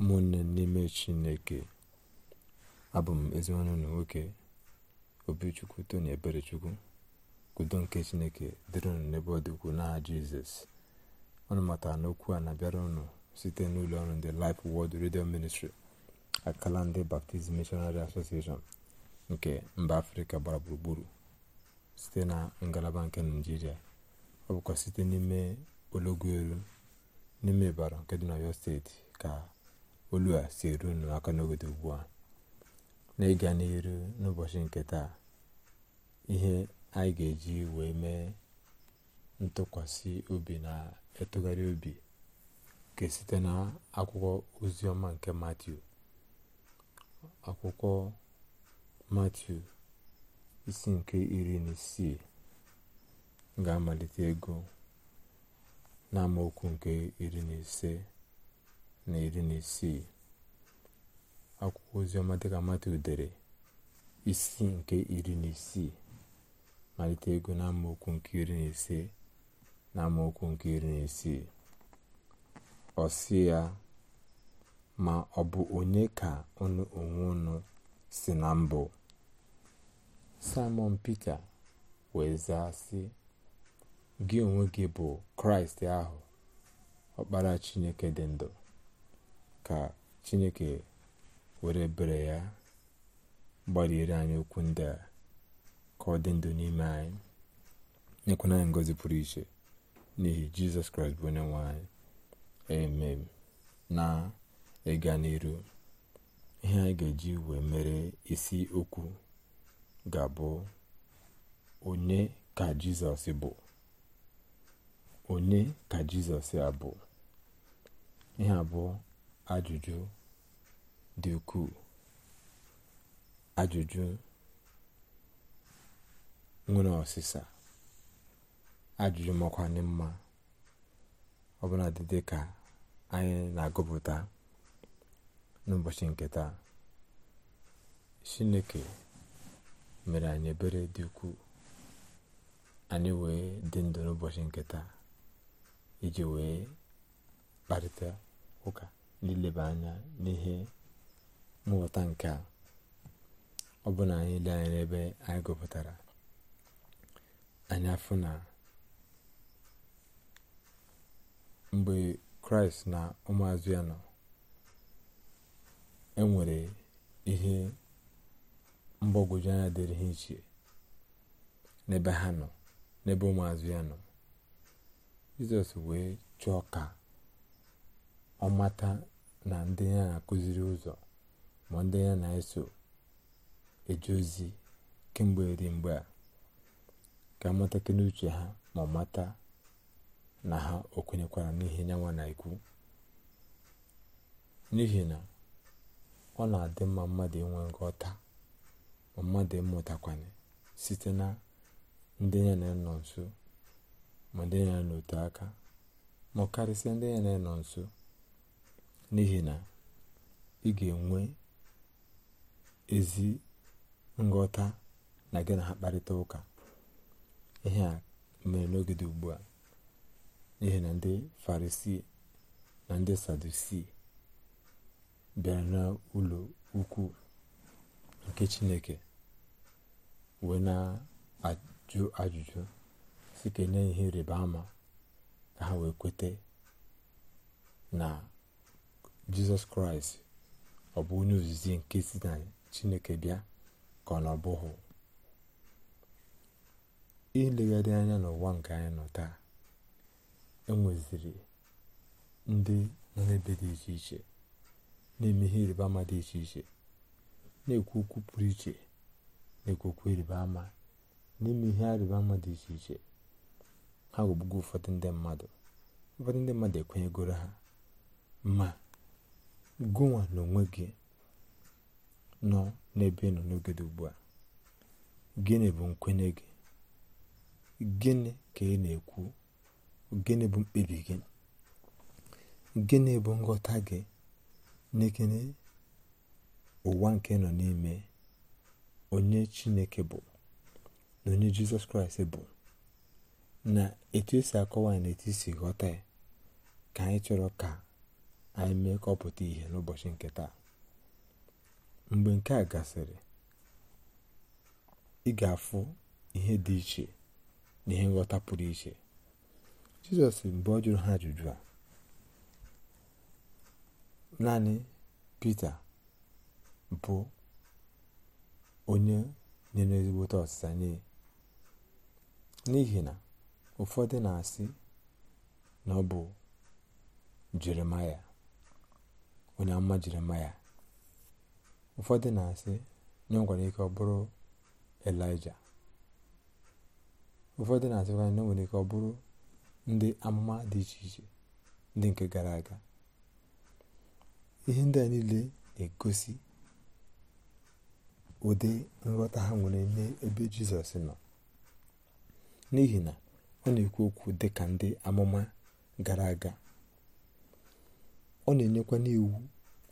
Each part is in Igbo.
ụmụnne n'ime chineke abụ m ezinwanne na nwoke obichukwu tony eberechukwu udo nke chineke dịrị unu n'ebe ọ dịkwu n'aha jizọs ọnụ matara n'okwu a na-abịara ụnụ site n'ụlọ ọrụ ndị Life wod redio Ministry akala ndị Baptist mishonari Association nke mba afrịka gbara gburugburu site na ngalaba nke naijiria ọ bụkwa site n'ime ologo elu n'ime ịbara nke dị oyo steeti ka olu a si eru n'obodo aka ugbu a na ịga n'iru n'ụbọchị nke taa ihe anyị ga-eji wee mee ntụkwasị obi na ịtụgharị obi nke site na akwụkwọ oziọma nke matiu akwụkwọ matiu isi nke iri na isii ga-amalite ego n'amaokwu nke iri na ise na iri na isii akwụkwọ oziọma dịka mata isi nke iri na isii malite ego na amaokwu nke iri na ise na amaokwu nke iri na isii ọ ya ma ọ bụ onye ka unu onwe unu si na mbụ simon pete wee zaa sị gị onwe gị bụ kraịst ahụ ọkpara chineke dị ndụ ka chineke were bere ya gbalịere anyị okwu ndị a ka ọ dị ndụ n'ime anyị nyekwana anyị ngozi pụrụ iche n'ihi jizọs kraịst bụ onye anyị emem na ịga n'iru ihe anyị ga-eji wee mere isi okwu ga-abụ onye ka jizọs bụ onye ka jizọs abụ ihe abụọ ajụjụ dị ukwuu ajụjụ nwere ọsịsa ajụjụ makwanị mma ọbụla dị ka anyị na-agụpụta n'ụbọchị nke taa chineke mere anyị ebere dị ukwuu anyị wee dị ndụ n'ụbọchị nke iji wee kparịta ụka n'ileba anya n'ihe mmụta nke a ọ anyị ile anya n'ebe anyị gụpụtara anya afụ na mgbe kraịst na ụmụazụ ya nọ e nwere ihe mgbagwoju anya dịrị ha iche n'ebe ha nọ n'ebe ụmụazụ ya nọ jizọs wee chọọ ka Ọ mata na ndị ya na-akụziri ụzọ ma ndị ya na-eso eje ozi kemgbe dị mgbe a ka matakị n'uche ha ma mata na ha o kwenyekwara n'ihe nyanwa na ikwu. n'ihi na ọ na-adị mma mmadụ inwe nghọta ma mmadụ ịmụtakwanye site na ndị ya na-enọ nso ma ndị ya na aka ma karịsịa ndị ya na-enọ nso n'ihi na ị ga-enwe ezi nghọta na gị na ha kparịta ụka ihe a mere n'oge dị ugbu a n'ihi na ndị farisii na ndị sadusi bịara ụlọ ukwu nke chineke wee na-ajụ ajụjụ si ka ihe rịba ama ka ha wee kweta na jizọs kraịst ọ bụ onye ozizi nke si na chineke bịa ka ọ na ọ bụghị ilegharị anya n'ụwa nke anyị nọ taa enweziri ndị nọ n'ebe dị iche iche na-eme ihe ịrịba ama dị iche iche na-ekwu okwu pụrụ iche na-ekwu ịrịba ama n'ime ihe ịrịba ama dị iche iche ha ghọgbugo ụfọdụ ndị mmadụ ụfọdụ ndị mmadụ ekwenyegoro ha ma gụnwa onwe gị nọ n'ebe nọ n'oge dị ugbu a gịnị bụ nkwenye gị gịnị ka ị na-ekwu gịnị bụ mkpebi gị gịnị bụ nghọta gị n'ekene ụwa nke nọ n'ime onye chineke bụ na onye jizọs kraịst bụ na etu esi akọwa na etu esi ghọta ya ka anyị chọrọ ka anyị mee ka ọ pụta ihe n'ụbọchị nke taa mgbe nke a gasịrị ị ga-afụ ihe dị iche na ihe nghọta pụrụ iche jizọs mgbe ọ jụrụ ha ajụjụ a naanị pita bụ onye nyere ezigbote ọsịsa nye n'ihi na ụfọdụ na-asị na ọ bụ jeremaya onye ama jiri ya ụfọdụ na-asị na ọ nwere ike ọ bụrụ elija ụfọdụ na-asịkwa na nwere ike ọ ndị amụma dị iche iche ndị nke gara aga ihe ndị a niile na-egosi ụdị nghọta ha nwere n'ebe jizọs nọ n'ihi na ọ na-ekwu okwu dị ka ndị amụma gara aga ọ na-enyekwa n'iwu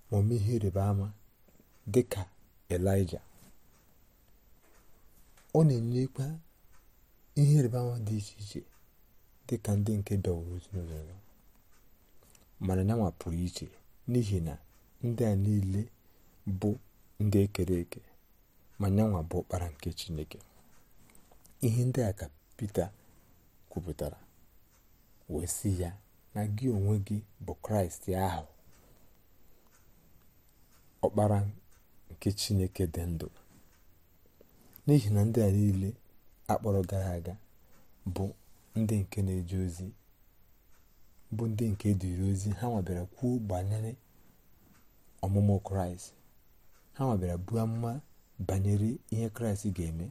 ma ọme ihe ịrịba ama dị ka elija ọ na-enyekwa ihe ịrịba ama dị iche iche dị ka ndị nke dọwụrụ ezinụlọ ya mana nyanwa pụrụ iche n'ihi na ndị a niile bụ ndị ekere eke ma nyanwa bụ ọkpara nke chineke ihe ndị a ka Pita kwupụtara wee si ya na gị onwe gị bụ kraịst ahụ ọkpara nke chineke dị ndụ n'ihi na ndị a niile akpọrọ gara aga bụ ndị nke na ozi ha nwabịara kwuo banyere ọmụmụ kraịst ha nwabịara buo amụma banyere ihe kraịst ga-eme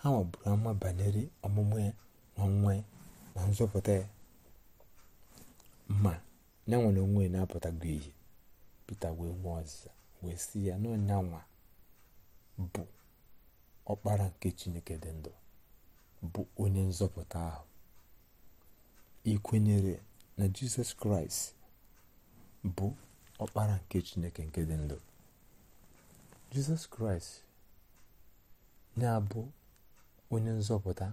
ha nwaburu amụma banyere ọmụmụ ya na nwa na nzọpụta ya ma na nwere onwe na-apụtago ihe pita wee nwee ọzịza wee sị ya na ọnyanwa bụ ọkpara nke chineke dị ndụ bụ onye nzọpụta ahụ ikwenyere kwenyere na jizọs kraịst bụ ọkpara nke chineke nke dị ndụ jizọs kraịst na-abụ onye nzọpụta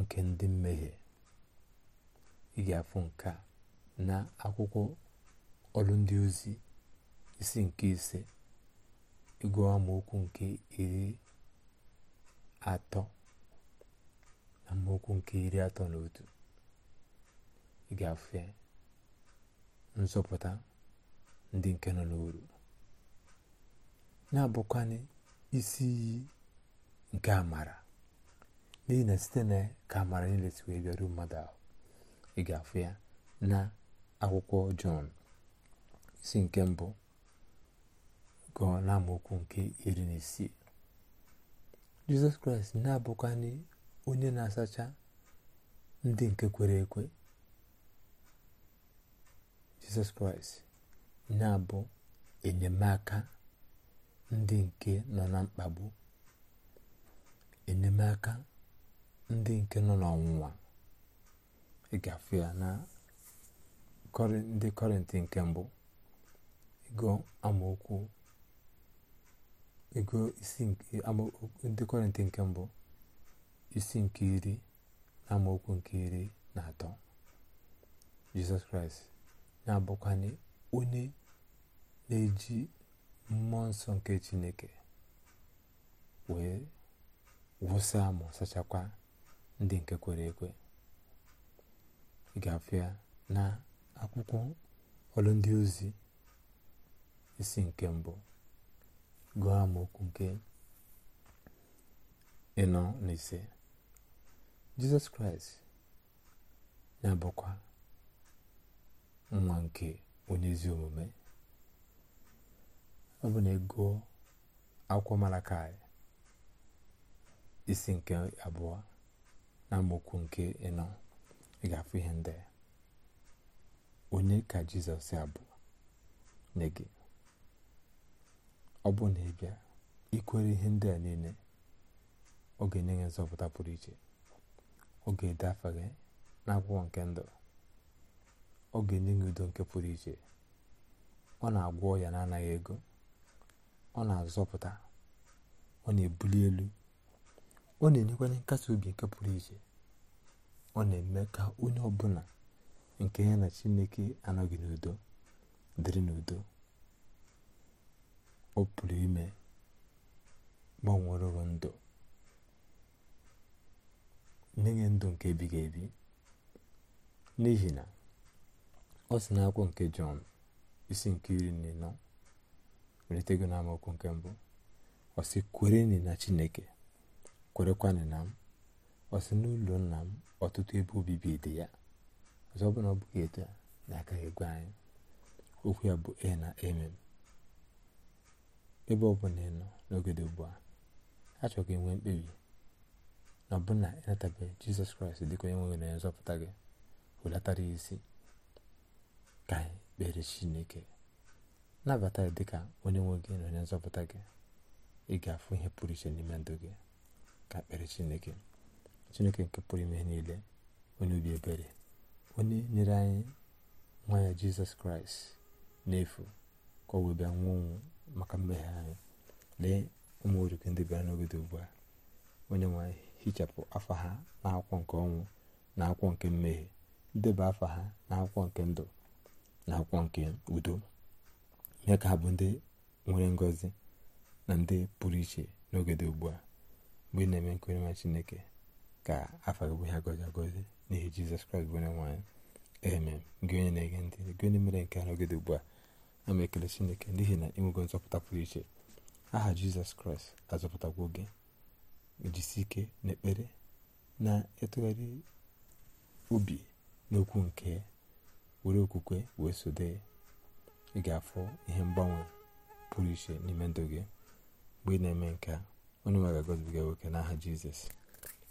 nke ndị mmehie ị ga-afụ nke a na akwụkwọ ọrụ ndị ozi isi nke ise ịgụ amaokwu nke iri atọ na amaokwu nke iri atọ na otu ị ga-afụ ya nzọpụta ndị nke nọ n'oru na-abụkwanị isi iyi nke amara n'ihi na site na ka amara niile si wee bịaruo mmadụ ahụ ị ga ya na akwụkwọ jọn isi nke mbụ gụọ na amaokwu nke iri na isii jizọs kraịst na-abụkwanị onye na-asacha ndị nke kwere ekwe jizọs kraịst na-abụ enyemaka ndị nke nọ na mkpagbu enyemaka ndị nke nọ n'ọnwụnwa ị gafee ya na ndị kọrịntị nke mbụ ego amaokwu ndị kọrịntị nke mbụ isi nke iri na amaokwu nke iri na atọ jizọs kraịst na-abụkwanye onye na-eji mmụọ nsọ nke chineke wee wụsa ma sachakwa ndị nke kwere ekwe ị ga-afụ ya na akwụkwọ ọlụ ndị ozi isi nke mbụ gụọ amaokwu nke ịnọ na ise jizọs kraịst na-abụkwa nwa nke onye omume ọ bụ na ego akwụkwọ malakai isi nke abụọ na amaokwu nke ịnọ ị ga-afụ ihe ndị onye ka jizọs ya bụ gị ọ bụ na ị bịa ikwere ihe ndị a niile ọ ga-enye gị nzọpụta pụrụ iche ọ ga-ede afọ gị n'akwụkwọ nke ndụ ọ ga-enye gị udo nke pụrụ iche ọ na-agwọ ya na-anaghị ego ọ na-azọpụta ọ na-ebuli elu ọ na-enyekwanye nkasi obi nke pụrụ iche ọ na-eme ka onye ọbụla nke ya na chineke anọghị n'udo dịrị n'udo ọ pụrụ ime gbanwerụrụ ndụ nye ndụ nke ebighị ebi n'ihi na ọ na n'akwụkwọ nke jọn isi nke iri na ịnọ na amaokwu nke mbụ ọ sị kwere na chineke kwerekwanị na m ọ sị n'ụlọ nna m ọtụtụ ebe obibi dị ya ọzọ ọ bụla ọ bụghị etu a aka egwe anyị okwu ya bụ e na emem ebe ọbụla ị n'ogede n'oge dị ugbu a achọrọ ka enwee mkpebi na ọbụna ịnatabeghị jizọs kraịst dịka onye nwere na nzọpụta gị hulatara isi ka anyị kpere chineke nabata ya dịka onye nwe gị na onye nzọpụta gị ị ga-afụ ihe pụrụ iche n'ime ndụ gị ka kpere chineke chineke nke pụrụ ime niile onye obi ebere onye nyere anyị nwa ya jizọs kraịst n'efu ka ọ wee bịa nwụọ maka mmehie anyị lee ụmụ orike ndị bịara n'obodo ugbu a onye nwe hichapụ afa ha n'akwụkwọ nke ọnwụ na akwụkwọ nke mmehie ndeba afa ha na akwụkwọ nke ndụ na akwụkwọ nke udo mee ka ha bụ ndị nwere ngọzi na ndị pụrụ iche n'oge ugbu a mgbe ị na-eme nke onye Chineke ka afọ gị bụ ihe n'ihi jizọs kraịst bụ onye nwaanyị ee gị onye na-ege ntị gị onye mere nke ahụ gịdị ugbu a ama ekele chineke n'ihi na ịnwego nzọpụta pụrụ iche aha jizọs kraịst azọpụtagwo gị ejisi ike na ekpere na ịtụgharị obi n'okwu nke were okwukwe wee sode ị ga ihe mgbanwe pụrụ iche n'ime ndụ gị mgbe ị na-eme nke a onye nwe ga-agọzibiga nwoke n'aha jizọs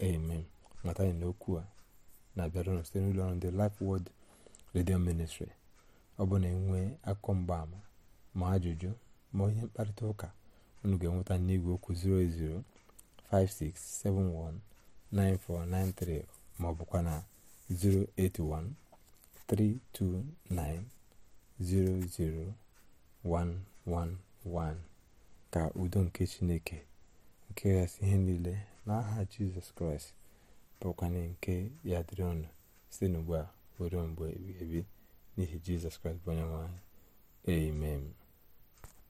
amen mata anyị n'okwu a na-abịarụnụ site n'ụlọ ọrụ ndị Life world Radio Ministry ọ bụ na akụ akụkọ mgbaama ma ajụjụ ma onye mkparịta ụka unu ga-enweta n'igwe okwu 08056719493 ma ọ bụkwa na ka udo nke Chineke nke gasị ihe niile n'aha jizọs kraịst bụkwanye nke ya dịrị ọnụ site n'ugbu a were mgbe ebi n'ihi jizọs kraịst bụ onye nwe anyị